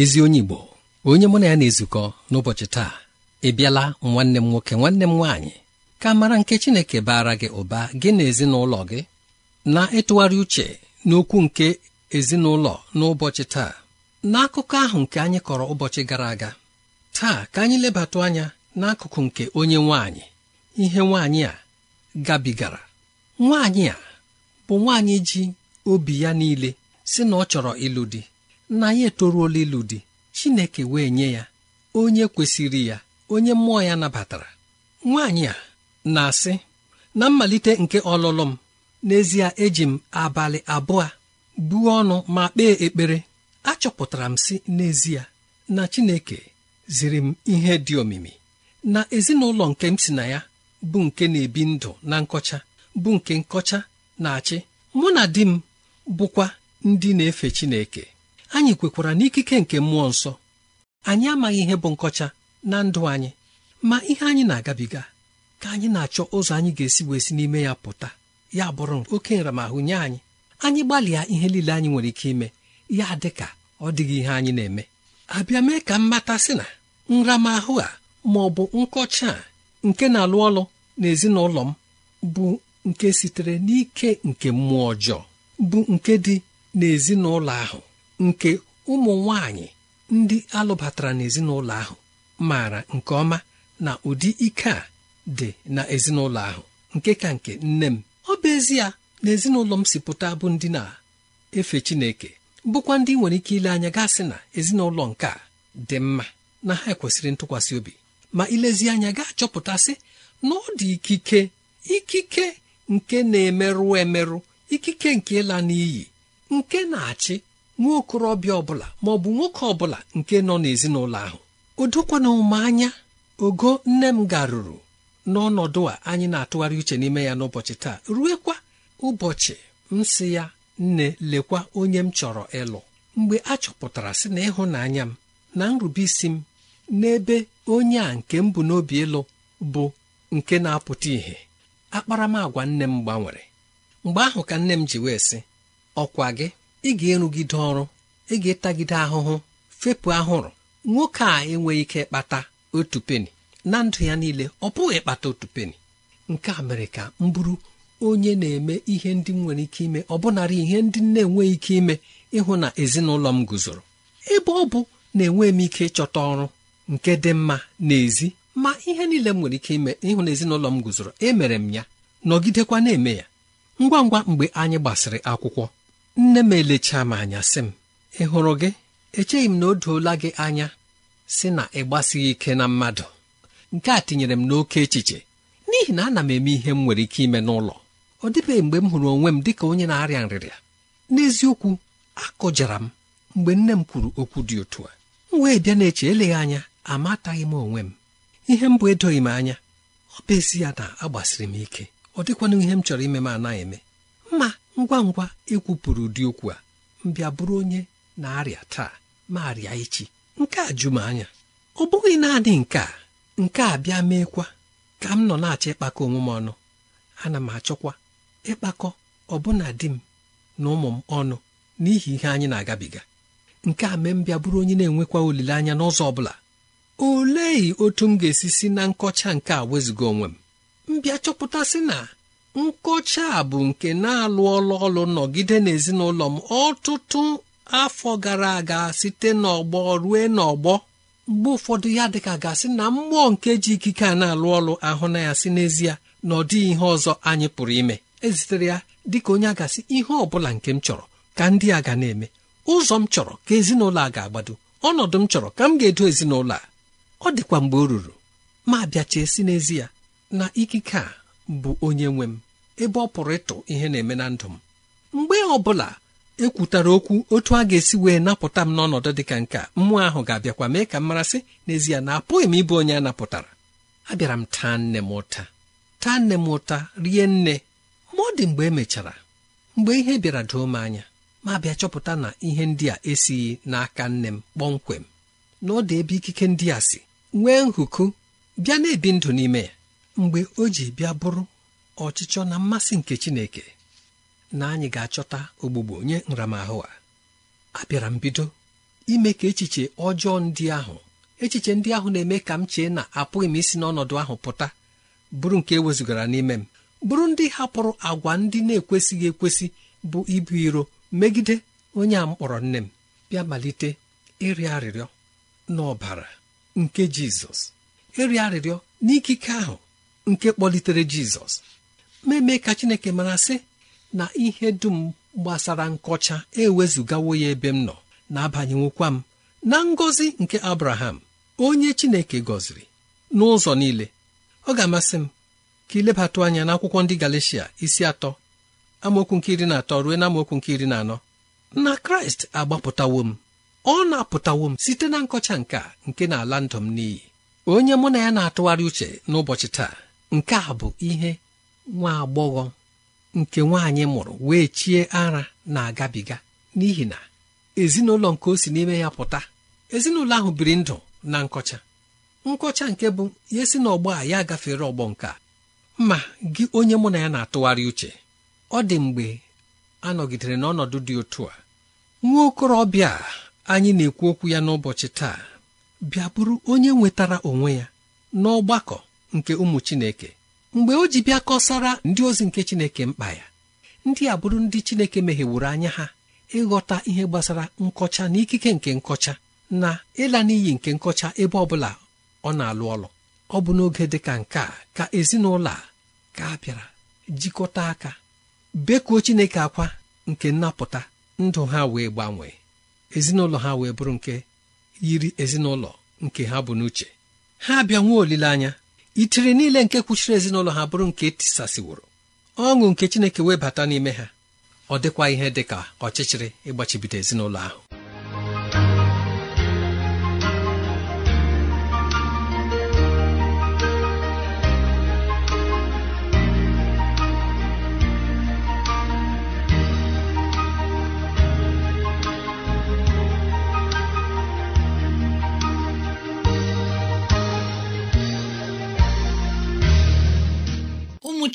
ezi onye Igbo onye mụ na ya na-ezukọ n'ụbọchị taa ị bịala nwanne m nwoke nwanne m nwaanyị ka mara nke Chineke baara gị ụba gị na ezinụlọ gị na-ịtụgharị uche n'okwu nke ezinụlọ n'ụbọchị taa n'akụkọ ahụ nke anyị kọrọ ụbọchị gara aga taa ka anyị lebatụ anya n'akụkụ nke onye nwaanyị ihe nwaanyị a gabigara nwaanyị a bụ nwaanyị ji obi ya niile si na ọ chọrọ ịlụ di na ya etoruola olilu di chineke wee nye ya onye kwesịrị ya onye mmụọ ya nabatara nwaanyị a na-asị na mmalite nke ọlụlụ m n'ezie eji m abalị abụọ buo ọnụ ma kpee ekpere achọpụtara m si n'ezie na chineke ziri m ihe dị omimi na ezinụlọ nke m si na ya bụ nke na-ebi ndụ na nkọcha bụ nke nkọcha na-achị mụ na di m bụkwa ndị na-efe Chineke anyị kwekwara n'ikike nke mmụọ nsọ anyị amaghị ihe bụ nkọcha na ndụ anyị ma ihe anyị na-agabiga ka anyị na-achọ ụzọ anyị ga-esi wee si n'ime ya pụta ya bụrụ oke nramahụ nye anyị anyị gbalịa ihe niile anyị nwere ike ime ya dị ka ọ dịghị ihe anyị na-eme abịa mee ka mmata sị na nramahụ a ma ọ bụ nkọcha a nke na-alụ ọlụ n'ezinụlọ m bụ nke sitere n'ike nke mmụọ ọjọọ bụ nke dị n'ezinụlọ ahụ nke ụmụ nwanyị ndị alụbatara n'ezinụlọ ahụ maara nke ọma na ụdị ike a dị na ezinụlọ ahụ nke ka nke nne m ọ bụ ezie na ezinụlọ m si pụta bụ ndị na-efe Chineke bụkwa ndị nwere ike ile anya gasị na ezinụlọ nke a dị mma na ha ekwesịrị ntụkwasị obi ma ilezi anya ga-achọpụtasị na ọ dị ikike ikike nke na-emerụ emerụ ikike nke ịla n'iyi nke na-achị nwa okorobịa ọbụla maọbụ nwoke ọbụla nke nọ n'ezinụlọ ahụ o dokwana ụma anya ogo nne m garuru n'ọnọdụ a anyị na-atụgharị uche n'ime ya n'ụbọchị taa ruekwa ụbọchị m si ya nne lekwa onye m chọrọ ịlụ mgbe a chọpụtara sị na ịhụnanya m na nrubeisi m n'ebe onye a nke m bụ n'obi ịlụ bụ nke na-apụta ìhè akparamagwa nne m gbanwere mgbe ahụ ka nne m ji wee sị ọkwa gị ị ga-erugide ọrụ ị ga-etagide ahụhụ fepụ ahụrụ nwoke a enweghị ike kpata otu peni na ndụ ya niile ọ pụghị ịkpata otu peni nke a mere ka m bụrụ onye na-eme ihe ndị m nwere ike ime ọbụnara ihe ndị m na-enweghị ike ime ịhụ na ezinụlọ m guzoro ebe ọ bụ na enweghị m ike ịchọta ọrụ nke dị mma n'ezi ma ihe niile m nwere ike ime ịhụ na ezinụlọ m guzoro emere m ya nọgidekwa na-eme ya ngwa ngwa mgbe anyị gbasịrị akwụkwọ nne m elechaa m anya sị m ị hụrụ gị echeghị m na o doola gị anya sị na ị gbasighị ike na mmadụ nke a tinyere m n'oke echiche n'ihi na ana m eme ihe m nwere ike ime n'ụlọ ọ dịbeghị mgbe m hụrụ onwe m dị ka onye na-arịa nrịrịa n'eziokwu akụjara m mgbe nne m kwuru okwu dị otu a m wee bịa na-eche eleghị anya amataghị m onwe m ihe m bụ edoghị m anya ọ bụ ezi ya na agbasiri m ike ọ dịkwanụ ihe m chọrọ ime m anaghị eme ngwa ngwa ịkwupụrụ ụdị okwu a mbịa bụrụ onye na-arịa taa ma arịa echi nke a jụ m anya ọ bụghị naanị nke a nke a bịa meekwa ka m nọ na-achọ ịkpakọ onwe m ọnụ ana m achọkwa ịkpakọ ọbụna di m na ụmụ m ọnụ n'ihi ihe anyị na-agabiga nke a mee m bụrụ onye na-enwekwa olileanya n'ụzọ ọ bụla olee otu m ga-esi si na nkọcha nke a wezụga onwe m Mbịa chọpụta chọpụtasị na nkocha a bụ nke na-alụ ọlụ ọlụ nọgide n'ezinụlọ m ọtụtụ afọ gara aga site n'ọgbọ rue n'ọgbọ mgbe ụfọdụ ya dịka gasị na mmụọ nke ji ikike a na-alụ ọlụ ahụ na ya si n'ezie na ọ dịghị ihe ọzọ anyị pụrụ ime ezitere ya dịka onye agasị ihe ọ bụla nke m chọrọ ka ndị a ga na-eme ụzọ m chọrọ ka ezinụlọ a ga-agbado ọnọdụ m chọrọ ka m ga-edo ezinụlọ a ọ dịkwa mgbe o ruru ma bịachie si n'ezie na ikike a bụ onye nwe m ebe ọ pụrụ ịtụ ihe na-eme na ndụ m mgbe ọ bụla ekwutara okwu otu a ga-esi wee napụta m n'ọnọdụ dị ka nke a mmụọ ahụ ga-abịakwa mee ka m marasị n'ezie na apụghị m ịbụ onye a napụtara abịara m taa nne m ụta taa nne m ụta rie nne ma ọ dị mgbe emechara mgbe ihe bịara doo m anya ma bịa chọpụta na ihe ndị a esighị n'aka nne m kpọmkwem na ọ dị ebe ikike ndị a si nwee nhụkụ bịa na-ebi ndụ n'ime ya mgbe o ji bịa bụrụ ọchịchọ na mmasị nke Chineke na anyị ga-achọta ogbugbo nye nramahụ a abịara m bido ime ka echiche ọjọọ ndị ahụ echiche ndị ahụ na-eme ka m chee na apụghị m isi n'ọnọdụ ahụ pụta bụrụ nke ewezugara n'ime m bụrụ ndị hapụrụ agwa ndị na-ekwesịghị ekwesị bụ ibu iro megide onye a mkpọrọ nne m bịa malite ịrịọ arịrịọ n'ọbara nke Jizọs ịrịọ arịrịọ n'ikike ahụ nke kpọlitere jizọs mmeme ka chineke mara sị na ihe dum gbasara nkọcha ewezugawo ya ebe m nọ na-abanyenwukwa m na ngọzi nke abraham onye chineke gọziri n'ụzọ niile ọ ga-amasị m ka ilebatụ anya n'akwụkwọ ndị galicia isi atọ amaokwu nke iri na atọ ruo na amaokwu nke iri na anọ na kraịst agbapụtawo m ọ na-apụtawo m site na nkọcha nke a nke na-ala ndụ m n'iyi onye mụ na ya na-atụgharị uche n'ụbọchị taa nke a bụ ihe nwa agbọghọ nke nwaanyị mụrụ wee chie ara na-agabiga n'ihi na ezinụlọ nke o si n'ime ya pụta ezinụlọ ahụ biri ndụ na nkọcha nkọcha nke bụ ya si n'ọgbọ a ya gafere ọgbọ nke a ma gị onye mụ na ya na-atụgharị uche ọ dị mgbe a nọgidere n'ọnọdụ dị otu a nwa okorobịa anyị na-ekwu okwu ya n'ụbọchị taa bịa bụrụ onye nwetara onwe ya n'ọgbakọ nke ụmụ Chineke mgbe o ji bịa kọsara ndị ozi nke Chineke mkpa ya ndị a bụrụ ndị Chineke meghewuru anya ha ịghọta ihe gbasara nkọcha na ikike nke nkọcha na ịla n'iyi nke nkọcha ebe ọ bụla ọ na-alụ ọlụ ọ bụ n'oge dị ka nke a ka ezinụlọ a ka bịara jikọta aka bekuo Chineke akwa nke nnapụta ndụ ha wee gbanwee ezinụlọ ha wee bụrụ nke yiri ezinụlọ nke ha bụ n'uche ha bịa nwee olileanya itiri niile nke kwuchiri ezinụlọ ha bụrụ nke e tisasiworo ọṅụ nke chineke wee bata n'ime ha ọ dịkwa ihe dị ka ọchịchịrị ịgbachibido ezinụlọ ahụ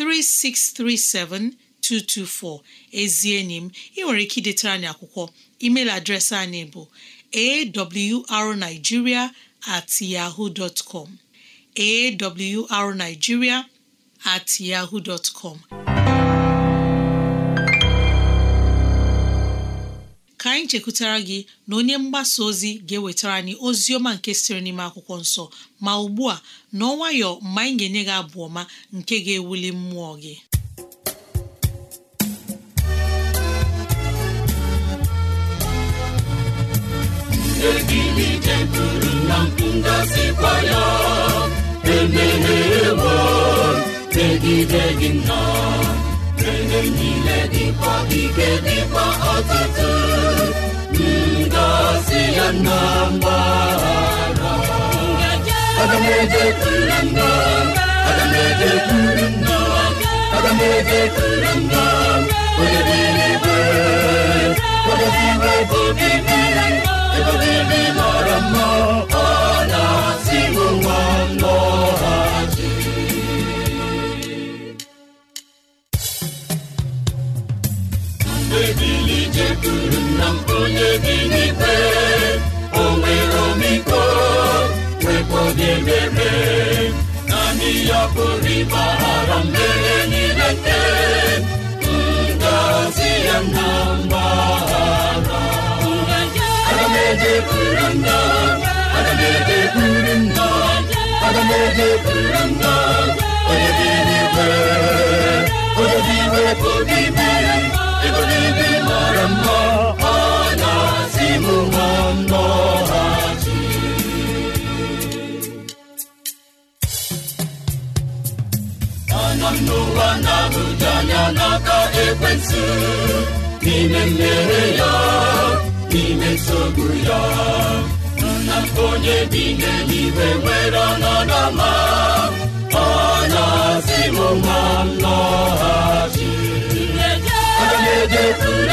3637224 ezi enyi m ị nwere ike idetara anyị akwụkwọ email adreesị anyị bụ awrnigeria at yahoo dot com awrnigeria at yahoo com ka anyị chekwutara gị na onye mgbasa ozi ga-ewetara anyị ozi ọma nke sịrị n'ime akwụkwọ nsọ ma ugbu a n'ọnwayọ mgbe anyị ga-enye gị abụ ọma nke ga-ewuli mmụọ gị megide gị nnọọ mgbe niile dịkwa ike dịkwa ọtụtụ ngọzi ya na mgbahara aga m ejekwuru nna aga m ejekwuru nna aga m ejekwuru nna mma chekwuru na onye dị n'ikpe o ememe naanị ya pụrụ ịgbaghara mmehie niile nke ya na mgbaghara onye dị n'ikpe ebube mara mma ọ na-asị m nwanọhachi anọ m n'ụwa na n'ime mmere ya n'ime nsogbu ya nna onye bi n'eluigwe nwere ọnọdụ ọma ọ na-asị mụ nwa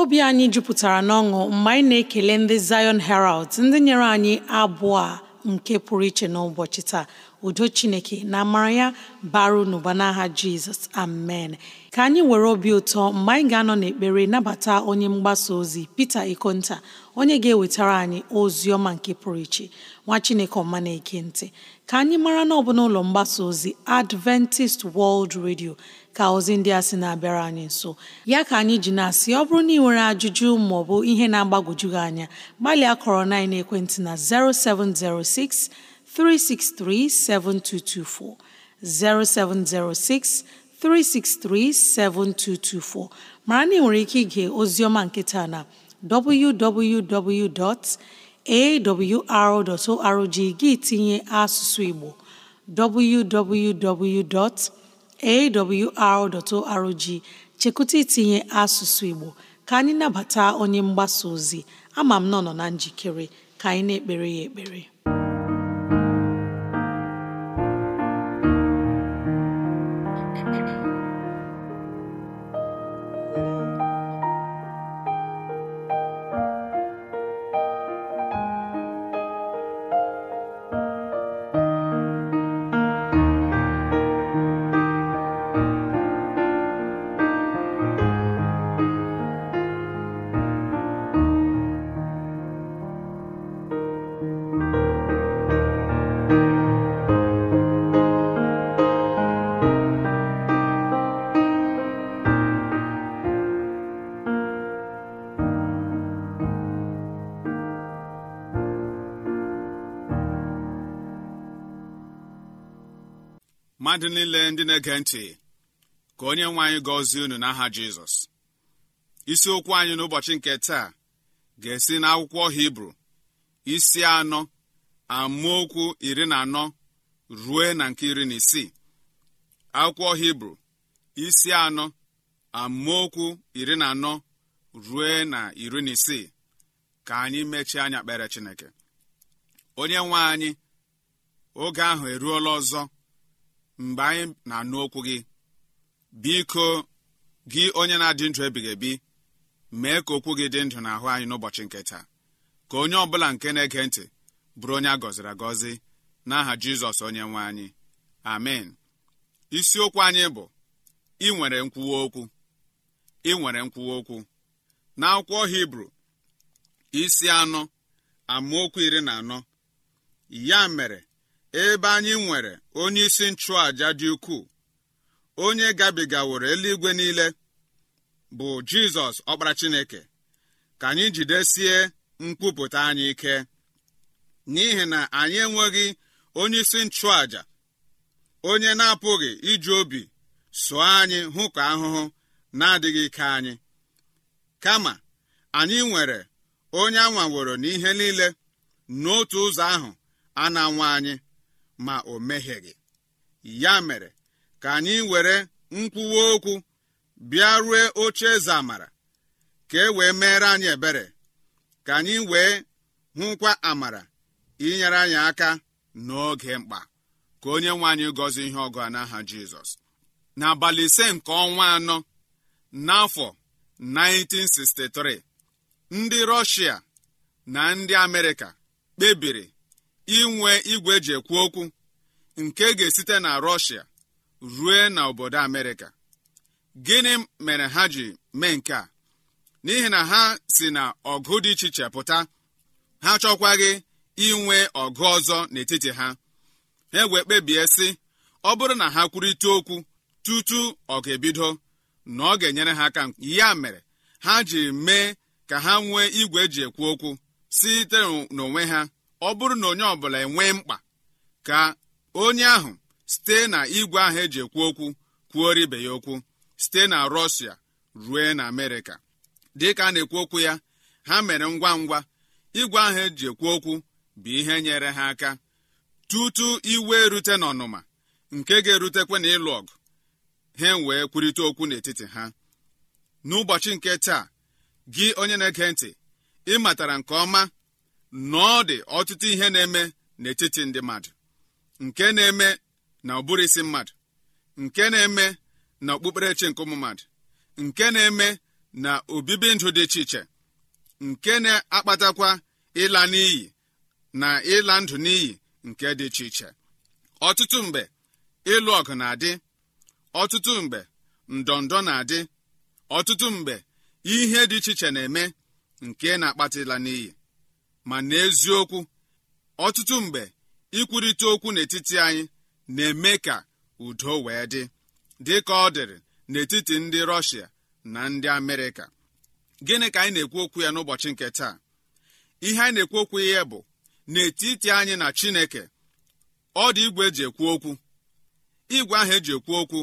obi anyị jupụtara n'ọṅụ mgbe anyị na-ekele ndị Zion Herald ndị nyere anyị abụọ a nke pụrụ iche n'ụbọchị taa udo chineke na amara ya baru n'ụba N'agha jizọs amen ka anyị were obi ụtọ mgbe anyị ga-anọ n'ekpere nabata onye mgbasa ozi Pita Ikonta onye ga-ewetara anyị ozi ọma nke pụrụ iche nwa chineke ọma na-eke ntị ka anyị mara na ọ n'ụlọ mgbasa ozi Adventist World Radio ka ozi ndị a sị na-abịara anyị nso ya ka anyị ji na-asị ọ bụrụ na ị nwere ajụjụ maọbụ ihe na-agbagwoju gị anya gbalịa kọrọ na ekwentị na 0706 363 7224 0706 363 7224 mara na ị nwere ike ige ozioma nkịta na www. awr.org gị tinye asụsụ Igbo www.awr.org chekụta itinye asụsụ Igbo ka anyị nabata onye mgbasa ozi ama m nọ na njikere ka anyị na-ekpere ya ekpere mmadụ niile ndị na-ege ntị ka onye nwe anyị gọzie unu n'aha jizọs isiokwu anyị n'ụbọchị nke taa ga-esi n'akwụkwọ hibru isi anọ amaokwu iri na anọ rue na nke iri na isii akwụkwọ hibru isi anọ amaokwu iri na anọ rue na iri na isii ka anyị mechie anya kpere chineke onye nwe anyị oge ahụ eruola ọzọ mgbe anyị na-anụ okwu gị biko gị onye na-adị ndụ ebighị ebi mee ka okwu gị dị ndụ n'ahụ anyị n'ụbọchị nke taa ka onye ọ bụla nke na-ege ntị bụrụ onye a gọziri agọzi n'aha jizọs onye nwe anyị amen isiokwu anyị bụ ị nwere nkwuwa okwu ị nkwuwa okwu na akwụkwọ hibru isi anọ amaokwu iri na anọ ya mere ebe anyị nwere onye isi nchụàja dị ukwuu onye gabigaworo eluigwe niile bụ jizọs ọkpara chineke ka anyị jidesie nkwupụta anyị ike n'ihi na anyị enweghị onyeisi isi nchụàja onye na-apụghị iji obi sụọ anyị hụkọ ahụhụ na-adịghị ike anyị kama anyị nwere onye anwaworo n'ihe niile n'otu ụzọ ahụ a na-anwa anyị ma o mehieghị ya mere ka anyị were nkwuwa okwu bịa rue oche eze amara ka e wee meere anyị ebere ka anyị wee hụkwa amara inyere anyị aka n'oge mkpa ka onye nwe anyị gọzie ihe ọgụ a n'aha Jizọs n'abalị ise nke ọnwa anọ n'afọ 1963 ndị Rọshia na ndị Amerịka kpebiri inwe igwe eji ekwu okwu nke ga-esite na rọshia rue na obodo amerịka gịnị mere ha ji mee nke a n'ihi na ha si na ọgụ dị iche iche pụta ha chọkwaghị inwe ọgụ ọzọ n'etiti ha ha wee kpebie sị ọ bụrụ na ha kwurịta okwu tutu ọ ga-ebido na ọ ga-enyere ha aka ya mere ha ji mee ka ha nwee igwe eji ekwu okwu site n'onwe ha ọ bụrụ na onye ọ bụla enwee mkpa ka onye ahụ site na igwe ahụ eji ekwu okwu kwuoro ibe ya okwu site na rọshia rue na amerịka dịka a na-ekwu okwu ya ha mere ngwa ngwa igwe ahụ eji ekwu okwu bụ ihe nyere ha aka tutu iwe erute n'ọnụma nke ga erutekwa na ịlụ ọgụ ha wee kwurịta okwu n'etiti ha n'ụbọchị nke taa gị onye na-ege ntị ị matara nke ọma nọọ dị ọtụtụ ihe na-eme n'etiti ndị mmadụ nke na-eme na ụbụrụ isi mmadụ nke na-eme na okpukperechi nke ụmụ mmadụ nke na-eme na obibi ndụ dị iche iche nke na-akpatakwa ịla n'iyi na ịla ndụ n'iyi nke dị iche iche ọtụtụ mgbe ịlụ ọgụ na-adị ọtụtụ mgbe ndọndọ na-adị ọtụtụ mgbe ihe dị iche iche na-eme nke na-akpata ịla n'iyi ma n'eziokwu ọtụtụ mgbe ikwurịta okwu n'etiti anyị na-eme ka udo wee dị dị ka ọ dịrị n'etiti ndị rọshia na ndị amerịka gịnị ka anyị na-ekwu okwu ya n'ụbọchị nke taa ihe anyị na-ekwu okwu ya bụ n'etiti anyị na chineke ọ dị igwe eji ekwu okwu igwe ahụ eji ekwu okwu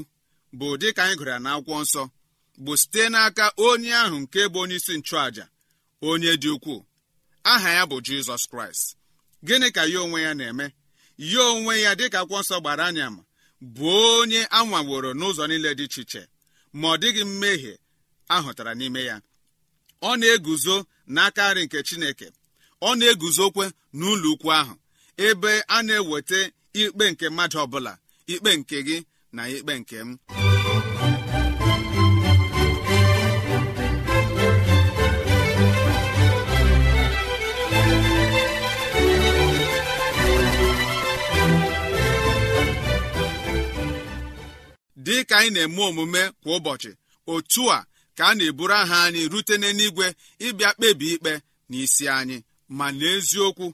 bụ dị ka anyị gụrụ ya n'akwụkwọ nsọ bụ site n'aka onye ahụ nke bụ onye isi nchụàja onye dị ukwuu aha ya bụ jizọs kraịst gịnị ka ya onwe ya na-eme ya onwe ya dịka akwụkwọ nsọ gbara anya ma bụ onye a nwaworo n'ụzọ niile dị iche iche ma ọ dịghị mmehie ahụtara n'ime ya ọ na-eguzo n'aka nri nke chineke ọ na-eguzokwe n'ụlọ ukwu ahụ ebe a na-eweta ikpe nke mmadụ ọbụla ikpe nke gị na ikpe nke m dị ka anyị na-eme omume kwa ụbọchị otu a ka a na-eburu aha anyị rute n'eluigwe ịbịa kpebi ikpe n'isi anyị ma n'eziokwu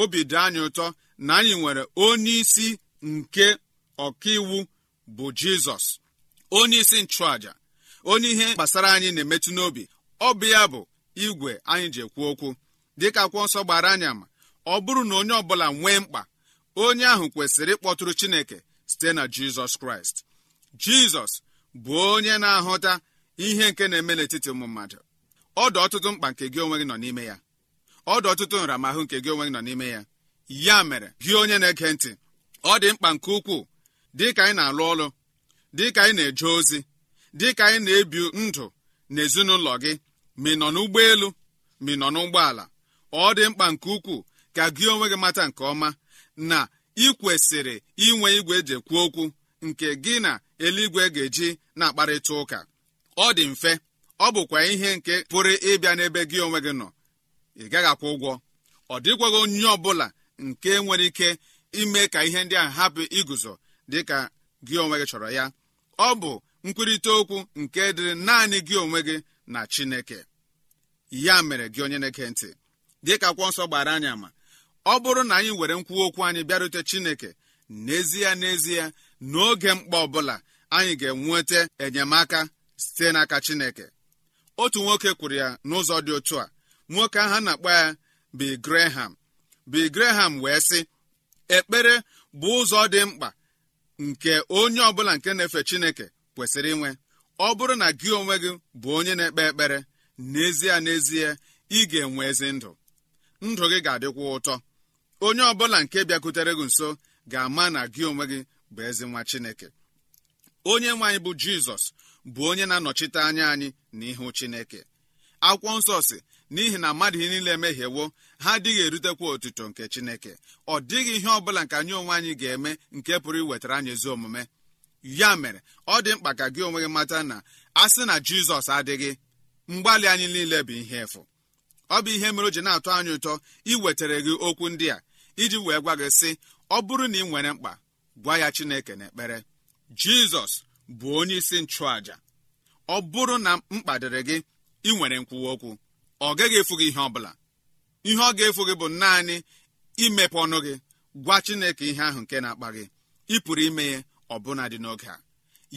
obi dị anyị ụtọ na anyị nwere onye isi nke ọkaiwu bụ jizọs onye isi nchụàja onye ihe gbasara anyị na-emetụ n'obi ọ bụ ya bụ igwe anyị ji ekwu okwu dịka akwụ nsọ gbara anya ma ọ bụrụ na onye ọbụla nwee mkpa onye ahụ kwesịrị ịkpọtụrụ chineke site na jizọs kraịst jizọs bụ onye na-ahụta ihe nke na-eme n'etiti ụmụ mmadụ dị ọtụtụ mkpa nke gị onwe gị nọ n'ime ya ọdụ ọtụtụ nramahụ nke gị onwe gị nọ n'ime ya ya mere gị onye na-ege ntị ọ dị mkpa nke ukwuu dị ka anyị na-alụ ọrụ dị ka anyị na-eje ozi dị ka anyị na-ebi ndụ n'ezinụlọ gị ma ị nọ n'ụgbọelu ma ị nọ n'ụgbọala ọ dị mkpa nke ukwuu ka gị onwe gị mata nke ọma na ị kwesịrị inwe igwe eji ekwu okwu nke gị na eluigwe ga-eji na-akparịta ụka ọ dị mfe ọ bụkwa ihe nke pụrụ ịbịa n'ebe gị onwe gị nọ ị gaghị akwụ ụgwọ ọ dịkwaghị onye ọ bụla nke nwere ike ime ka ihe ndị a hapụ iguzo dị ka gị onwe gị chọrọ ya ọ bụ nkwurịta okwu nke dịrị naanị gị onwe gị na Chineke ya mere gị onye na-eke ntị dịka akwụkwọ nsọ gbara anyị ama ọ bụrụ na anyị were nkwu okwu anyị bịarute Chineke n'ezie n'ezie n'oge mkpa ọbụla anyị ga-enweta enyemaka site n'aka chineke otu nwoke kwuru ya n'ụzọ dị otu a nwoke ahụ a na-akpọ ya bi graham bi graham wee sị ekpere bụ ụzọ dị mkpa nke onye ọbụla nke na-efe chineke kwesịrị inwe ọ bụrụ na gị onwe gị bụ onye na-ekpe ekpere n'ezie n'ezie ị ga-enwe ezi ndụ ndụ gị ga-adịkwa ụtọ onye ọbụla nke bịakwutere gị nso ga-ama na gị onwe gị bụ ezi nwa chineke onye nwe anyị bụ jizọs bụ onye na-anọchite anya anyị n'ihu chineke akwụkwọ nsọ si n'ihi na mmadụ niile emehiewo ha adịghị erutekwa otuto nke chineke ọ dịghị ihe ọ bụla nke anyị onwe anyị ga-eme nke pụrụ iwetara anyị ezi omume ya mere ọ dị mkpa ka gị onwe gị mata na a sị na jizọs adịghị mgbalị anyị niile bụ ihe efu ọ bụ ihe mere o ji na-atọ anyị ụtọ iwetara gị okwu ndị a iji wee gwa gị sị ọ bụrụ na ị nwere mkpa gwa ya chineke n'ekpere jizọs bụ onye isi nchụàja ọ bụrụ na mkpa dịrị gị ị nwere nkwuwa okwu ọ gaghị efu gị ihe ọ bụla ihe ọ ga-efu gị bụ naanị imepe ọnụ gị gwa chineke ihe ahụ nke na-akpa gị ị pụrụ ime ya ọbụna dị n'oge a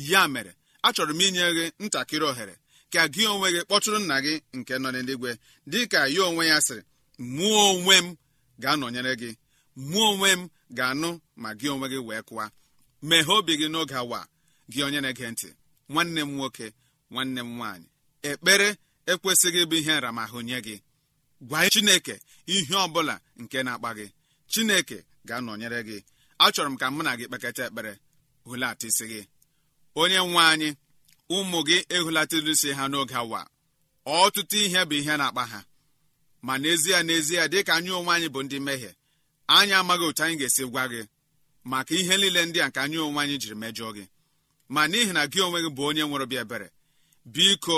ya mere achọrọ m inye gị ntakịrị ohere ka gị onwe gị kpọtụrụ nna gị nke nọ n'eluigwe dị ka ya onwe ya sịrị mụọ onwe m ga-anọnyere gị mụọ onwe m ga-anụ ma gị onwe gị wee kụwa meghee obi gị n'oge awa gị onye na-ege ntị nwanne m nwoke nwanne m nwaanyị ekpere ekwesịghị ịbụ ihe nramahụ nye gị gwa chineke ihe ọ bụla nke na-akpa gị chineke ga-anọnyere gị achọrọ m ka mụ na gị kpekata ekpere hulata isi gị onye nwe anyị ụmụ gị ehulatara isi ha n'oge awa ọtụtụ ihe bụ ihe na-akpa ha ma n'ezie n'ezie dịka anyị onwe anyị bụ ndị mmehie anyị amaghị otu anyị ga-esi gwa gị maka ihe niile ndị a nke anyị onwe anyị jiri mejọọ gị ma n'ihi na gị onwe gị bụ onye nwere obi ebere biko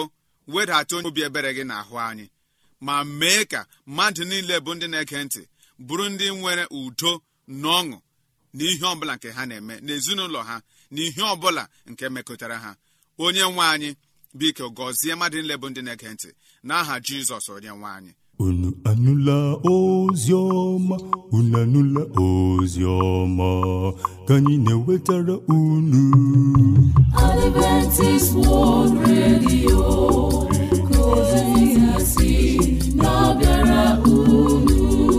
wedata onye obi ebere gị n'ahụ anyị ma mee ka mmadụ niile bụ ndị na-ege ntị bụrụ ndị nwere udo na ọṅụ na ihe ọbụla nke ha na-eme n'ezinụlọ ha na ihe ọbụla nke mekọtara ha onye nwe anyị biko gọzie mmadụ niile bụ ndị na-ege ntị n'aha Jizọs onye nwe anyị unu anụla ozi ọma unu anụla ozi ka anyị na-ewetara unu Radio ozi si na unu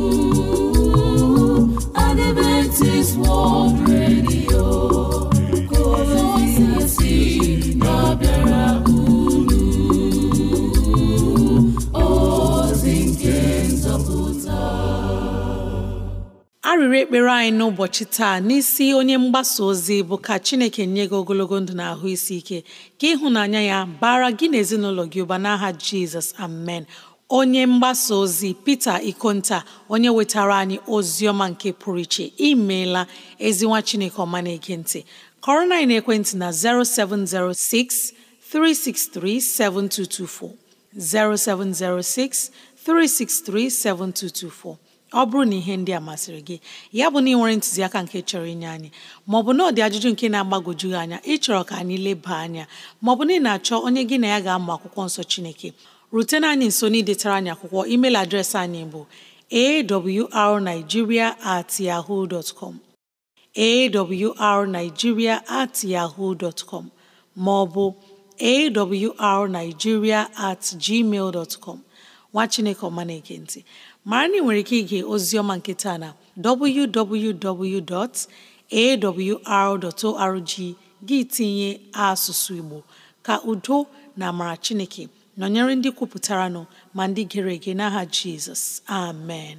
Adventist World Radio arịrị ekpere anyị n'ụbọchị taa n'isi onye mgbasa ozi bụ ka Chineke nye gị ogologo ndụ na ahụ isi ike ka ịhụnanya ya bara gị na ezinụlọ gị ụba n'aha Jizọs amen onye mgbasa ozi Peter Ikonta onye wetara anyị ozi ọma nke pụrụ iche imeela ezinwa Chineke ọma na-ege ntị kọrọ na ekwentị na 0706 363 7224 0706 363 7224 ọ bụrụ na ihe ndị a masịrị gị ya bụ na ị nwere ntụziaka nke chọrọ inye anyị maọbụ na ọ dị ajụjụ nke na-agbagwoju gị anya ịchọrọ ka anyị leba anya maọbụ na ị na-achọ onye gị na ya ga-amụ akwụkwọ nsọ Chineke rutena anyị nso n'idetara anyị akwụkwọ email adreesị anyị bụ awrnigeria at yahoo dot com awrnigeria at yahoo dot com maọbụ awrnigeria at gmail dot com nwa Chineke ọma na mara na nwere ike ige oziọma nke taa na www.awr.org gị tinye asụsụ Igbo ka udo na amara Chineke nọnyere ndị kwupụtara nọ ma ndị gere ege n'aha Jizọs amen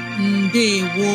ndewo